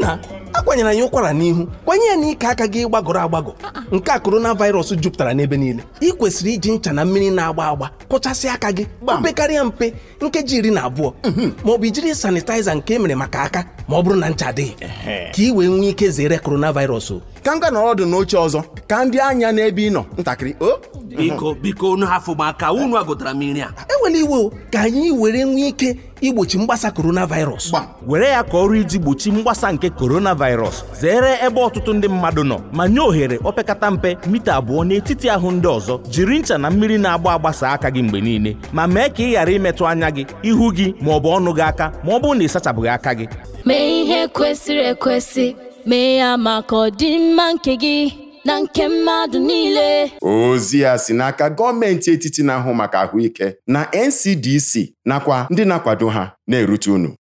nna akwanyela ya ụkwara n'ihu kwanye ya ike aka gị gbagọrọ agbagọ nke a korona virus jupụtara n'ebe niile ị kwesịrị iji ncha na mmiri na-agba agba kụchasị aka gị mpekarịa mpe nkeji iri na abụọ mhm. ma ọ bụ ijiri sanitaiza nke emere maka aka ma ọ bụrụ na ncha adịghị ka ị wee nwee ike zere korona virus ka m ga nọrọ ọdụ n'oche ọzọ ka ndị anya n'ebe ị nọ ntakịrị biko biko unu hafụ maka unu agụtara m nri a enwere iwe ka anyị were nwee ike igbochi mgbasa coronavirus were ya ka ọrụ iji gbochi mgbasa nke coronavirus zere ebe ọtụtụ ndị mmadụ nọ ma nye ohere opekata mpe mita abụọ n'etiti ahụ ndị ọzọ jiri ncha na mmiri na-agba agbasa aka gị mgbe niile ma mee ka ị ghara imetụ anya gị ihu gị ma ọ bụ ọnụ gị aka ma ọ bụrụ na ị aka gị mee ihe kwesịrị ekwesị mee ya maka ọdịmma nke gị na nke mmadụ niile ozi a si n'aka gọọmenti etiti na-ahụ maka ahụike na NCDC nakwa ndị na-akwado ha na-erute unu